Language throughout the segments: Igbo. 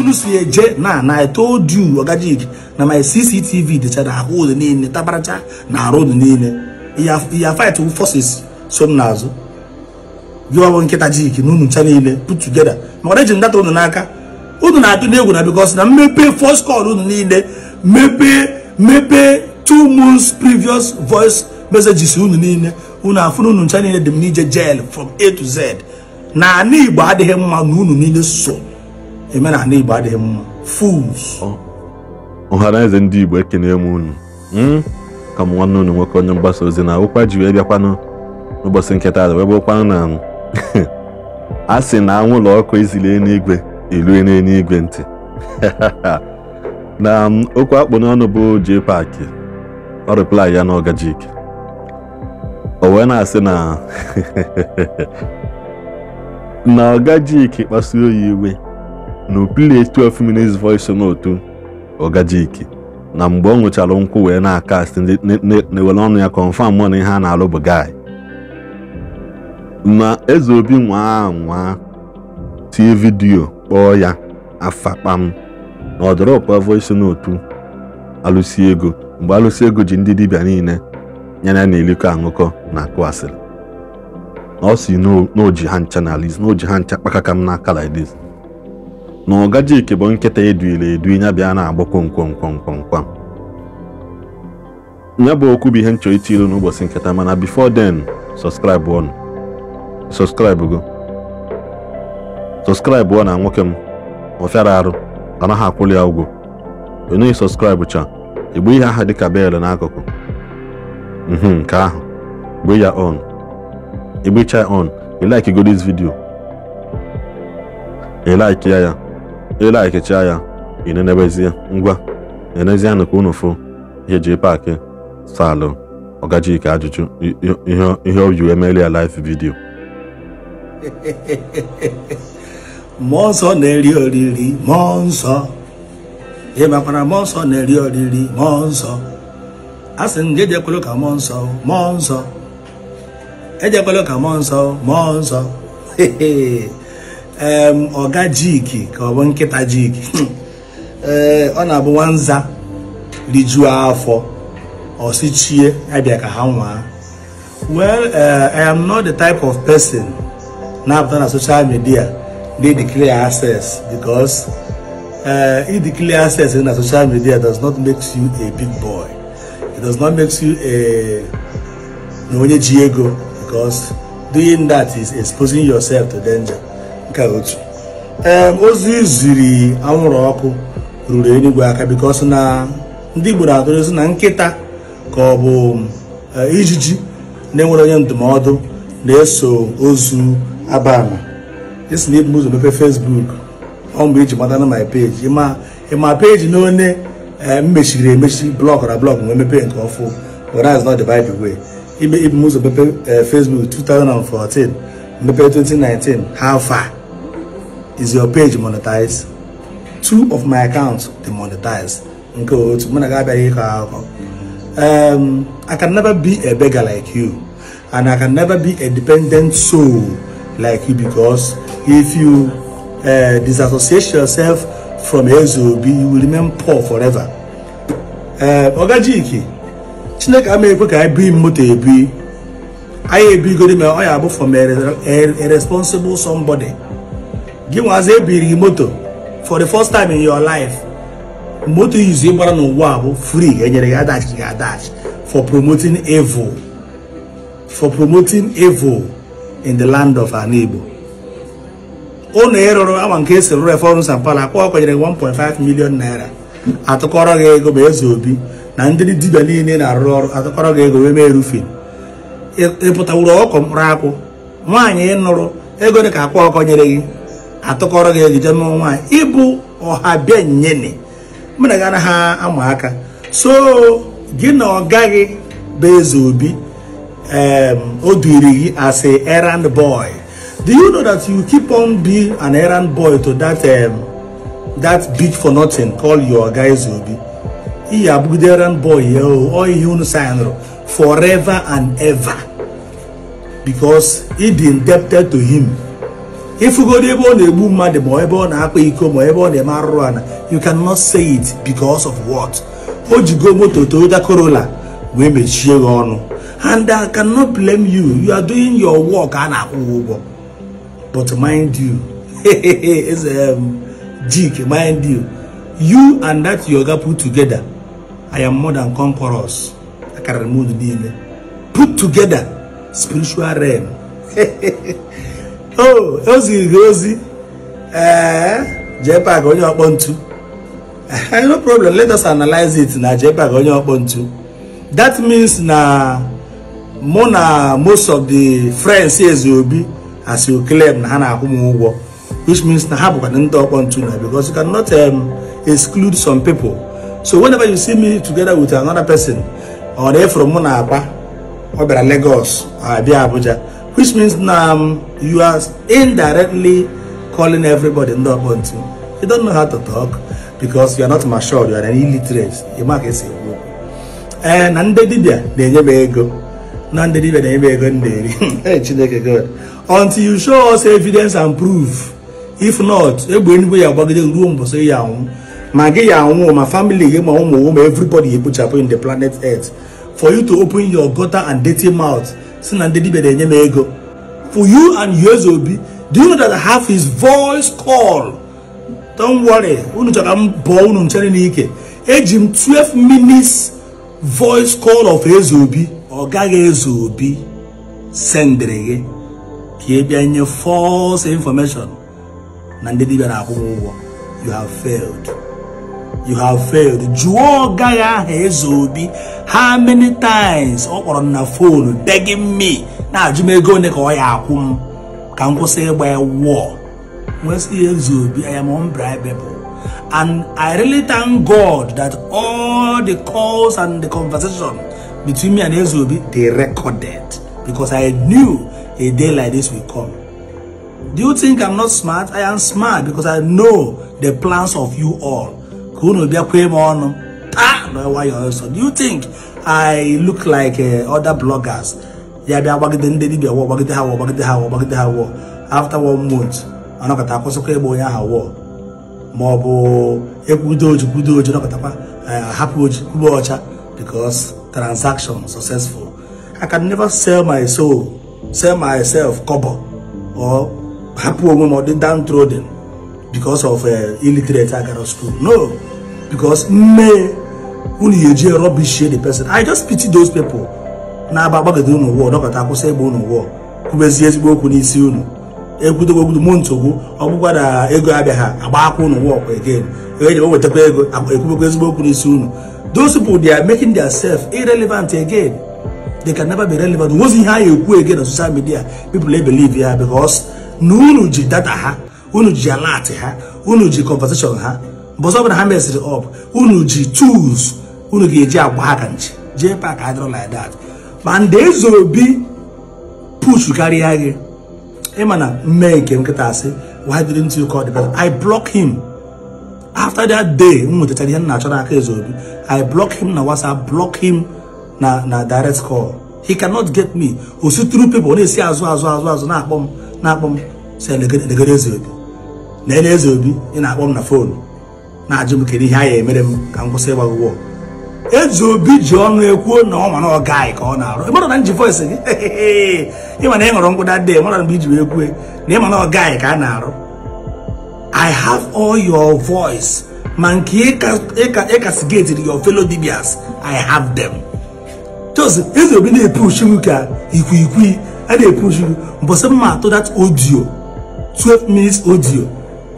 unu si eje na na I told you jik na my CCTV dịchara ahụ ụlọ niile tabaracha na arụ ụlọ niile ya fight forces so m n'azụ gị ọbụ nkịta jik na unu ncha niile put together maka eji data unu n'aka unu na-atụ n'egwu na because na mmepe first call unu niile mepee mepee two months previous voice messages unu niile unu afụ na ncha niile dị m n'ije jail from A to Z na ana Igbo adịghị mma na unu niile so omenala Igbo adịghị mma fools ọhara eze ndị Igbo ekene m unu hmm? ka m nwanne unu nwoke onye mgbasa ozi na ụkwa ji wee bịakwanụ n'ụbọchị nketa wee bụrụkwanụ na a sị na anwụlọ ọkụ ezili n'igwe elue n'eluigwe ntị na um, okwu akpụ n'ọnụ bụ JPAC ọ reply ya na ọgajik o wee na-asị na na ọgajik kpasuo ya iwe na upili 12 minutes voice note Ogajiki na mgbe ọ nwụchara nkwụ wee na-akast na-ewere ọnụ ya confam mụ na ihe a na-alụ bụ guy na eze obi nwa nwa tie vidiyo kpọọ ya afa kpam na ọ dọrọpụ voice note alụsi ego mgbe alụsi ego ji ndị dibịa niile nye ya na eliko aṅụkọ na akụ asịrị na ọ si n'oji ha ncha na liz n'oji ha ncha kpakaka m n'aka like na ọgajike bụ nkịta eduile edu ya bịa na-agba kwomkwomkwomkwomkwam ya bụ okwu bụ ihe nchọ iti ilu n'ụbọchị nketa mana before den subscribe ọnụ subscribe go subscribe ọ na nwoke m ọfịara arụ anaghị akwụli ya ụgwọ onye subscribe cha igbu ihe aha dịka bel n'akụkụ mhm, nke ahụ gbe ya on igbecha on e like go this video e ya ya ilaikecha ya inenebezie ngwa enezianụ ka unu fụ ihe ji paakị salụ ọgajike ajụjụ ihe o ji emeli ya live vidio mmụọ nsọ na-eri oriri mmụọ nsọ ị makwara mmụọ nsọ na-eri oriri mmụọ nsọ a sị ndị ejekwelu ka mmụọ nsọ mmụọ nsọ ejekwelu ka mmụọ nsọ mmụọ nsọ ọga jiki ka ọ bụ jiki ee ọ na-abụ nwanza rijuo afọ ọsichie abịa ka well eh, i am not the type of person Now that social media they declare access because eh, if declare access in na social media does not make you a big boy it does not make you a no onye ji ego because doing that is exposing yourself to danger nke otu ee ozi ziri anwụrụ ọkụ ruru enigwe aka bikos na ndị Igbo na-atụrụzi na nkịta ka ọ bụ e, ijiji na-enwere onye ndụmọdụ na-eso ozu abama esi na ibu ụzọ mepe Facebook ọ iji mata na my page ịma peji na onye m mechiri emechi blọk na blọk wee mepee nke ọfụ whereas not the Bible way ibe ibu ụzọ mepe e, Facebook 2014 mepe 2019 ha fa is your page monetized two of my accounts they monetize um, I can never be a beggar like you, and I can never be a dependent soul like you because if you uh, disassociate yourself from SOB, you will remain poor forever. Ọgajiki, eh, Chineke ama I ka ebi moto ebi, anyị ebigodi ma from a responsible somebody. gị nwazi ebiri gị moto for the first time in your life moto izu ị gbara n'ụwa bụ free enyere gị adachi gị adachi for promoting evil for promoting evil in the land of an Igbo ụlọ ịrụrụ ama nke esi rụrụ reforms and pala akwa kwenyere 1.5 million naira atụkọrọ gị ego ma eze obi na ndị dibia niile na-arụ ọrụ atụkọrọ gị ego wee mee rufin ịpụtawuru ọkụ mkpụrụ akwụ nwaanyị ịnụrụ ego dị ka akwa ọkọ nyere gị atụkọrọ gị ejije n'ọnwa nwaanyị ịbụ ọha bịa nyene mụ na ha anaghị ama aka so gị na ọ gaghị bụ eze obi o duiri gị as a errand boy do you know that you keep on being an errand boy to that um, that bitch for nothing call your guy eze obi ị ya abụgide errand boy ya o ihe unu sanrụ forever and ever because he be indebted to him ịfụgodi ebe ọ na-egbu mmadụ ma ebe ọ na-akpa iko ma ebe ọ na-eme arụrụ ana you cannot say it because of what o jigo moto Toyota Corolla wee mechie gị ọnụ and I cannot blame you you are doing your work a na-akwụ ụgwọ but mind you um, jik mind you you and that yoga put together I am more than conquerors m niile put together spiritual realm o ozi gị ozi ee JPAC onye ọkpọ ntu no problem let us analyze it na JPAC onye ọkpọ ntu that means na mụ na most of the friends eze obi as you claim na ha na-akwụ m ụgwọ which means na ha bụkwa ndị ọkpọ ntu na because you cannot um, exclude some people so whenever you see me together with another person ọ na from mụ na akpa ọ bịara Lagos abịa Abuja which means um, you are indirectly calling everybody not want You don't know how to talk because you are not mature, you are an illiterate. You mark is a ee na ndị dibịa na-enye m ego na ndị dibịa na-enye m ego until you show us evidence and proof if not egbe enugwe ya agbagide ruo mbọsị ya anwụ ma gị ya anwụ ma family my home, ụmụ ma everybody ekpochapụ in the planet earth for you to open your gutter and dirty mouth si na ndị dibia na-enye m ego for you and yours obi do you know that I have his voice call don't worry unu chọrọ m bụọ unu nchere n'ike eji m 12 minutes voice call of eze obi ọ gaghị eze obi sendịrị gị ka ị bịa nye false information na ndị dibia na-akwụ ụgwọ you have failed you have failed jụọ gaghị aha eze obi how many times ọ kpọrọ m na fonu begging me na-ajụ m ego one ka ọ ya akwụ m ka m kwụsị ịgba ya wụọ nwesị ihe eze obi I am unbribable and I really thank God that all the calls and the conversation between me and eze obi they recorded because I knew a day like this will come do you think I'm not smart? I am smart because I know the plans of you all. ka unu bịakwee m ọnụ taa na nwayọọ nsọ do you think I look like uh, other bloggers ya bịa gbagide ndị dibịa wọ gbagide ha wọ gbagide ha wọ gbagide ha wọ after one month anọkọta akwụsịkwa ịgba onye ahụ wọ ma ọ bụ ekwudo oji kwudo oji nọkọtakwa uh, hapụ oji kwuba ọcha because transaction successful I can never sell my soul sell myself cobo or hapụ onwe m ọ dị down trodden because of uh, illiterate agara school no because nne unu ga-eji rubbish share the person i just pity those people na-aba agbagide unu ụwa dọkọta akwụsị egbe unu ụwa kwubezie ezigbo okwu n'isi unu ekwudogo ogwudo mụ ntogbu ọ bụkwa na ego abịaghị agba akwa unu ụwa ọkwa again ego e ekwubekwa ezigbo okwu n'isi unu those people they are making themselves irrelevant again they can never be relevant ihe a na-ekwu again na social media people ya because na unu ji data ha unu ji ha unu ji conversation ha bọsọ bụla ha meziri ọp unu ji tools unu ga-eji agba aka nchi jee pak adịrọ like that ma ndị eze obi push karịa gị ịma na mme nke nkịta asị why didn't you call the person i block him after that day m nwetachara ihe m na-achọ n'aka eze obi i block him na whatsapp block him na na direct call he cannot get me o si tru people ọ na-esi azụ azụ azụ azụ na-akpọ m na-akpọ m si elegere eze obi na ele eze obi ị na-akpọ m na fonu na-ajụ m kedu ihe a ya emere m ka m kwụsị ịgba ụgwọ eji obi ji ọnụ ekwuo na ọ mana ọ gaghị ka ọ na-arụ ịmara na nji voice gị ịma na ị ṅụrụ mkpụda dee mara mgbe iji wee kwue na ịma na ọ gaghị ka a na-arụ i have all your voice ma nke ịkasigetiri your fellow dibias i have them jos eze obi na-epush gị ka ikwiikwi a na-epush gị mbọsị mma atụ that audio 12 minutes audio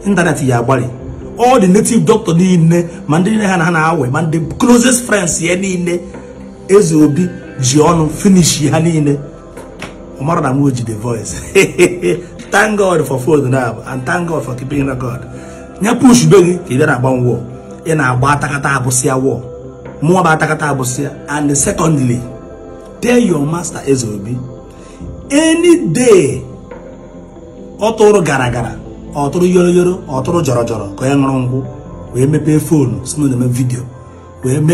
ịntanetị ya agbalị all the native doctor niile ma ndị niile ha na ha na-awe ma ndị closest friends ya niile eze obi ji ọnụ finish ya niile ọmara na m ji the voice thank god for food now and thank god for keeping record nye push be gị ka ị bịa na agbanwe wall ị na-agba atakata abụsịa wall mụọ bụ atakata abụsịa and secondly tell your master eze obi any day ọtụrụ gara gara yoro yoro na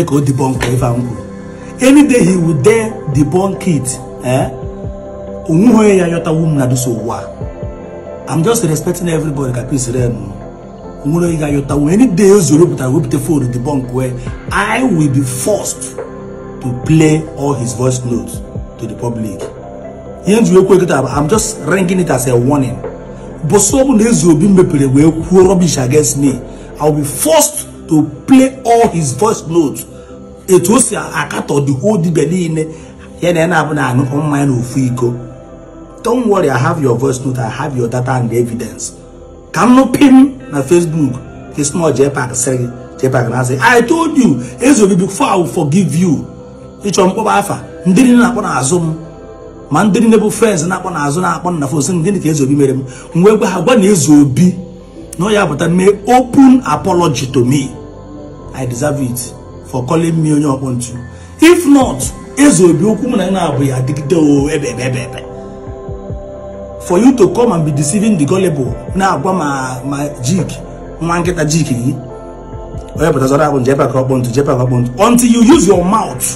o debunk a m any day he would dare debunk it eh ya yọta wum na i I'm just respecting everybody ka Please rem any day o zoro debunk I will be forced to play all his voice notes to the public i I'm just ranking it as a warning na Nezu Obi mepere wee kwuo rubbish against me I will be forced to play all his voice notes etu o si akatọ the whole dibia niile ya na ya na-abụ na aṅụkọ na ofu iko don't worry I have your voice note I have your data and evidence ka m nụpim na Facebook kesnọ Jpac sịrị Jpac na asị I told you Eze Obi before I will forgive you ịchọ mkpọba afa ndị niile na-akpọ n'azụ m ma ndị niile bụ frens na-akpọ n'azụ na-akpọ nna fos gịnị ka ezi obi mere m wee gwa ha gwa na eze obi na ọ ya pụta mee open apology to me i deserve it for calling me onye ọkpọ ntu if not eze obi okwu m na na-abụ ya adịgide o ebe ebe ebe for you to come and be deceiving the gullible na-agwa ma ma jik nwa nkịta jik gị onye zọrọ akpụ nje pak ọkpọ ntu jepa ka ọkpọ ntu until you use your mouth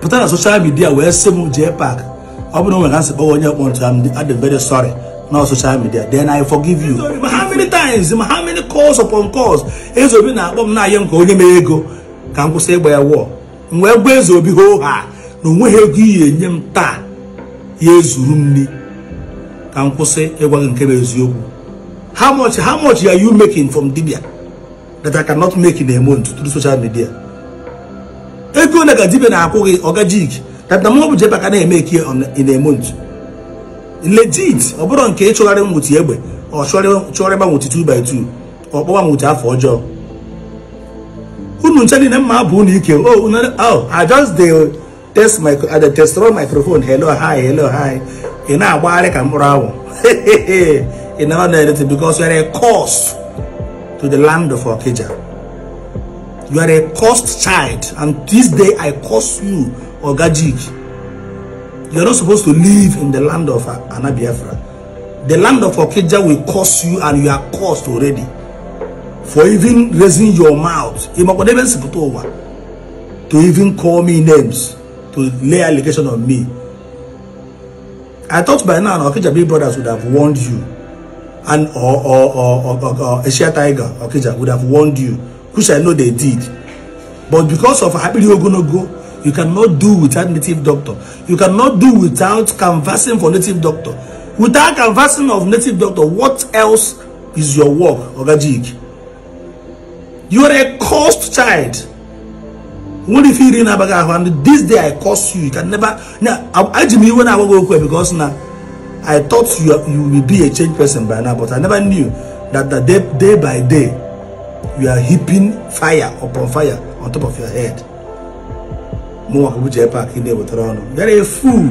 pụta na social media wee sị m jee pak ọ bụrụ nwere asị kpọwa onye kpọntụ I'm very sorry na social media then I forgive you ma how many times ma how many calls upon calls ezobi na-akpọ m na-ayọ nke onye mere ego ka m kwụsị ịgba ya wụọ. m wee gwa ezobi hoo ha na onweghị ego iyi enye m taa ya ezuru m nri ka m kwụsị ịgwa gị nke m eziokwu how much how much are you making from dibia that I cannot make in a month through social media ego na ka dibia na-akwụ gị ọgajigi that the month Jebba can make here on in a month. Legit, ọ bụrụ nke ịchọgharị nwụchi egbe ọ chọrọ ịgba nwụchi 2 by 2 ọ kpọwa nwụchi afọ ọjọọ. Unu nche niile mma bụ unu ike. Oh, oh, I just the test my I dey test all microphone. Hello, hi, hello, hi. Ị na-agbagharị ka mkpụrụ awụ. Ị na ọdụ editing because you are a curse to the land of Okija. You are a cursed child and this day I curse you or Gajig, you're not supposed to live in the land of Anabiafra. The land of Okija will curse you and you are cursed already. For even raising your mouth, to even call me names, to lay allegation on me. I thought by now Okija Big Brothers would have warned you. And or or or, or, or Asia Tiger Okija would have warned you, which I know they did. But because of Abiri Ogonogo, You cannot do without native doctor. You cannot do without canvassing for native doctor. Without canvassing of native doctor, what else is your work, Ogajig? You are a cursed child. What if you didn't have this day I cost you? You can never now I me when I go because now I thought you you will be a changed person by now, but I never knew that the day, day by day you are heaping fire upon fire on top of your head. mụnwa Abuja Park na-ewetara ọnụ there is fool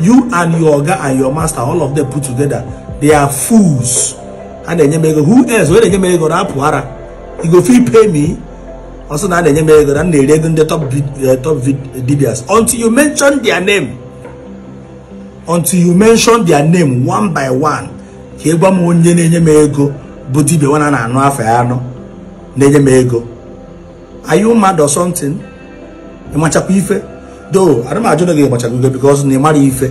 you and your oga and your master all of them put together they are fools ana na-enye m ego who else wee na-enye m ego na-apụ ara igo fi pay me ọsọ na a na-enye m ego na m na-eri ego ndị top eh, dibias until you mention their name until you mention their name one by one ka ịgwa m onye na-enye m ego bụ dibia nwana na-anụ afọ ya anọ na-enye m ego are you mad or something ịmachakwa ife doo ana m ajụ na gị ịmachakwa ife because na ị ife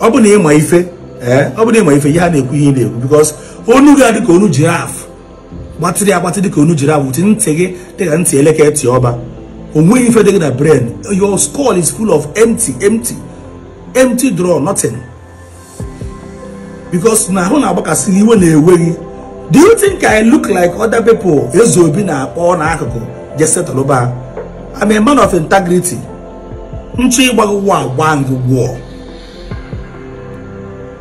ọ bụ na ịma ife ee ọ bụ na ịma ife ihe a na-ekwu ihe na-ekwu because onu gị adị ka onu jiraf gbatịrị agbatị dị ka onu jiraf wụti ntị gị dị ka ntị elekere ntị ọba o ife dị gị na brain your skull is full of empty empty empty draw nothing because na ahụ na-agbakasị iwe na-ewe gị do you think I look like other people ezo obi na-akpọ n'akụkụ je settle ba I'm a man of integrity. nchi ịgbago ụgwọ agba gị gwụọ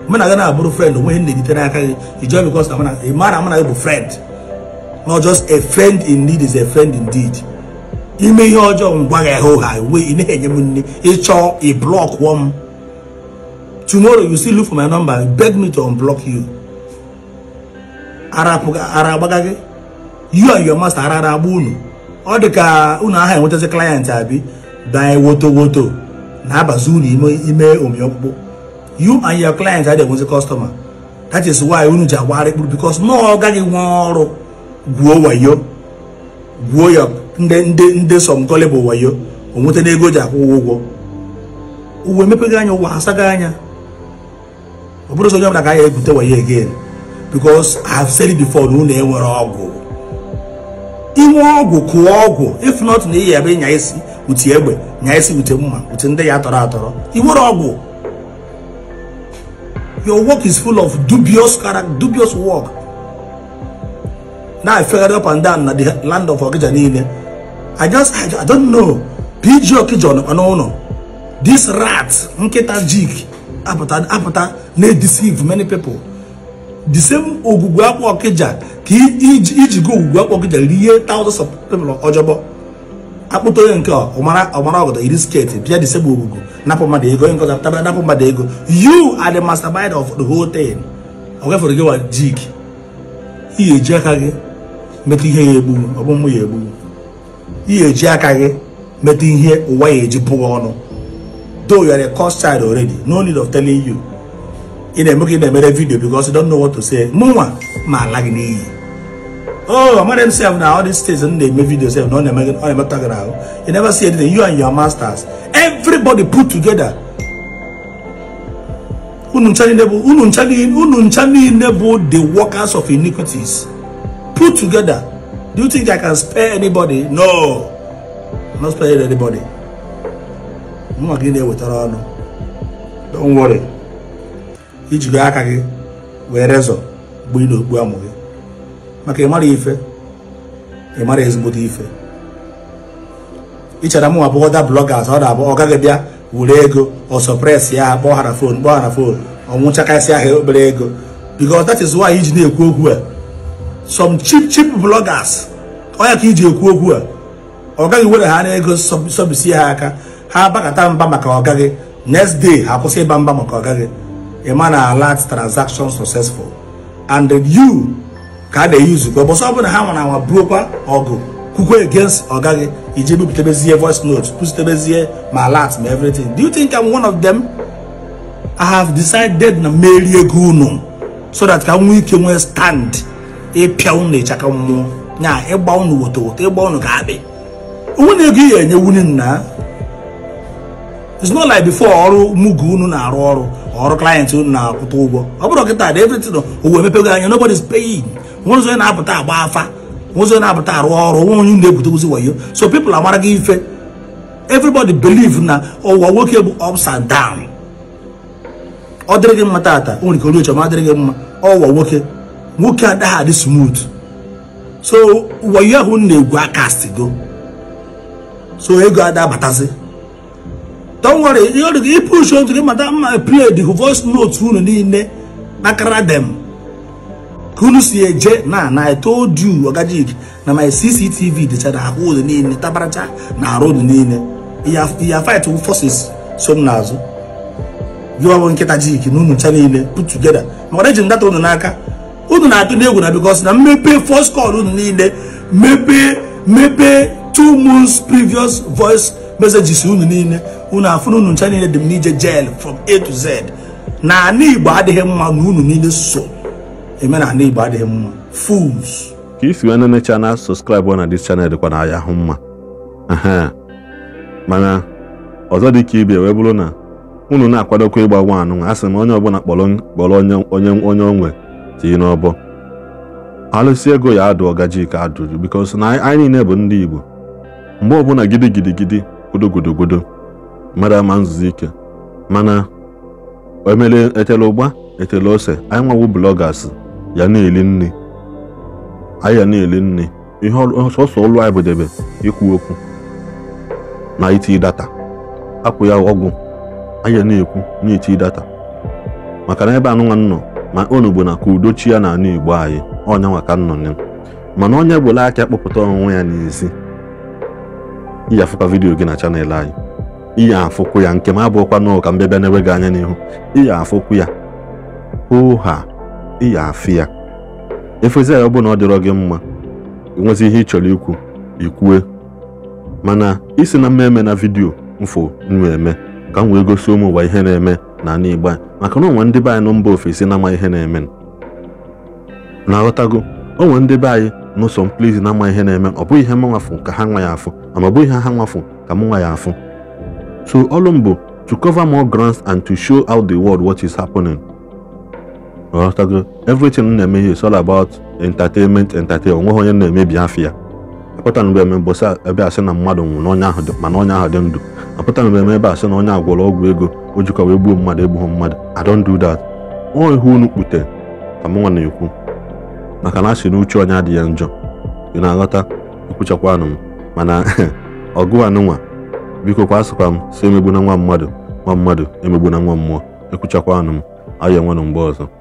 mụ na gị na-abụrụ friend onwe ihe na-egite aka gị join because ị mara amụ na gị bụ friend not just a friend in need is a friend indeed ime ihe ọjọọ ngwa gị ahụ ha e we ị na-enye m nne ịchọ ị blọk wọ tumoro tomorrow you still look for my number beg me to unblock you ara agbaga gị you and your master ara ara agba unu ọ dị ka unu aha enwetazi klayent abi banye woto woto na-abazi unu ime omi ọkpụkpụ you and your client adị enwezi kọstọma that is why unu ji agwagharị kpụrụ bikos na ọ gaghị nwe ọrụ gwuo wayo gwuo ya ndị nde sọmkọlị bụ wayo onweta ego ji akwụ ụgwọ ụgwọ uwe emepeghị anya ụwa asaghị anya ọ bụrụ sọ onye ọbụla ga ya egwute wayo again bikos I have said before na unu enwere ọgwụ inwe ọgwụ kụọ ọgwụ if not na iyi ebe ịnya isi uti egbe nya isi ute mma ute ndị ya tọrọ atọrọ iwere ọgwụ your work is full of dubious character dubious work na efegharị up and down na the land of Okija niile I just I, don't know PG Okija na n'ụlọ this rat nkịta jik apụta apụta na-edeceive many people the same ogwugwu akwa Okija ka iji go ugwu akpọ gị jere ihe thousands of people ọjọbọ akpụta onye nke ọmara ọgọdọ iri sketi bịa disegbu ogugo napụ mmadụ ego onye nkọta tabara napụ mmadụ ego you adị the mastermind of the whole thing ogafere gị wa jik ihe eji aka gị metụ ihe ya egbu ọgbụmụ ya egbu ihe eji aka gị metụ ihe ụwa ya eji bụghị ọnụ though you are a cost child already no need of telling you ị na-eme ka ị na-emere vidio because you don't know what to say mụnwa ma ala gị n'iyi Oh, among themselves now, all these things, and they make videos, and all them, all them talking now. You never see anything. You and your masters, everybody put together. The workers of iniquities put together. Do you think I can spare anybody? No, I'm not sparing anybody. I'm not getting there with her. Don't worry. Each guy can wear razor. We do, we are maka ịmara ife ịmara ezigbodo ife ichara mụ abụọ ọda blọgas ọ na-abụ ọ gaghị bịa were ego ọsọpres ya kpọghara fon kpọghara fon ọnwụchakasị ahịa obere ego because that is why iji na-ekwu okwu a some cheap cheap bloggers onye ka iji ekwu okwu a ọ gaghị were ha n'ego sọbisie ha aka ha bakata mba maka ọgaghị next day ha kwụsị ịba mba maka ọgaghị ịma na alert transaction successful and you ka a na-eyuzukwa bọsọ ọ bụrụ na ha nwara anwa burukwa ọgụ kwukwe against ọgaghị iji bipụtabezie voice note kwụsịtebezie ma alert ma everything do you think I'm one of them I have decided na merie ego unu so that ka nwee ike nwee stand ịpịa unu ịchaka mmụọ na ịgba unu woto woto ịgba unu ka abị onwe na ego ihe enye wunye nna it's not like before ọrụ mugu unu na-arụ ọrụ ọrụ client unu na-akwụta ụgwọ ọ bụrụ kịta dị everything owe emepego anya nobody is paying ụzọ na-apụta agba afa ụzọ na-apụta arụ ọrụ nwa onye na-ebute ozi wayo so people amara gị ife everybody believe na ụwa nwoke bụ ups and down ọ dịrị gị mma tata o nwere ike ma dịrị gị mma ọwa nwoke nwoke adaghị adị smooth so wayo ahụ na-egwu aka akastigo so ego adabatazi don't worry ịpụshu otu gị mata mma play the voice note unu niile bakara dem unu si eje na na i told you Ogajig na my CCTV dịchara ahụ ụlọ niile tabaracha na arụ ụlọ niile ya fight forces so m n'azụ gị ọbụ nkịta jik na unu cha niile put together maka eji ndata unu n'aka unu na-atụ n'egwu na because na mmepe first call unu niile mepee mepee two months previous voice messages unu niile unu afụ na unu ncha niile dị m n'ije jail from A to Z na ana Igbo adịghị mma na unu niile so eme na ndị Igbo adịghị mma fools ka isi wee nenecha na sọskraịbụ na dis chanel dịkwa na ya hụ mma mana ọzọ dị ka ibe wee bụrụ na unu na-akwadokwa ịgba nwa anụ a onye m onye ọbụla kpọrọ onye onwe tii n'ọbọ alụsị ego ya adụ ọgaji ka adụrụ bikos na anyị niile bụ ndị Igbo mgbe ọbụla gidi gidi gidi godogodogodo ama nzuzi ike mana emele etele ụgba etele ose anyị nwawu blọgas ya na-eli nne anyị ya na-eli nne ihe sọsọ ọlụ anyị bụ debe ikwu okwu na iti data akwụ ya ọgwụ anyị ya na-ekwu na-eti data maka na ebe anụnwa nnọ ma onugbo na ka udochi ya na anụ igbo anyị ọnya maka nnọnye mana onye bụla aka kpọpụta ọnwụnwe ya n'ezi iyi afụkwa vidiyo gị na chanel anyị iyi afụkwụ ya nke m abụọkwa n'ụka mbịa bịa n'ebe gị anya n'ihu iyi afụkwu ya oha ị ya afị ya efezi ya ọ bụ na ọ dịrọ gị mma enwezi ihe ị chọrọ ikwu ikwue mana isi na mma eme na vidiyo mfụ nwa eme ka m wee gosi ụmụ ụwa ihe na-eme na ana igbo maka na onwe ndị be anyị nọ mba ofesi na-ama ihe na-eme na aghọtago onwe ndị be anyị n'ụsọ mkpụrụ na-ama ihe na-eme ọ bụghị ihe m nwafụ ka ha nwa ya afụ ma ọ bụghị ihe ha nwafụ ka m nwa ya afụ so ọlụ m bụ to cover more grounds and to show out the world what is happening ọghọtago everything m na-eme ihe all about entertainment entertainment onweghị onye na-emebi afọ ya apụtana eme mbọsị ebe asị na mmadụ nwụrụ onye ahụ mana ahụ dị ndụ apụtana eme ebe asị na onye agwọrọ ọgwụ ego o jikwa wee gbuo mmadụ egbughị mmadụ I don't do that onwe ihe unu kpute ka mụnwa na-ekwu maka na asị na uche onye adịghị njọ ị na-aghọta ekwuchakwanụ m mana ọgụ anụnwa biko kwa asịkwa m si emegbu na nwa mmadụ nwa mmadụ emegbu na nwa mmụọ ekwuchakwanụ m ayọ enwenụ mgbe ọzọ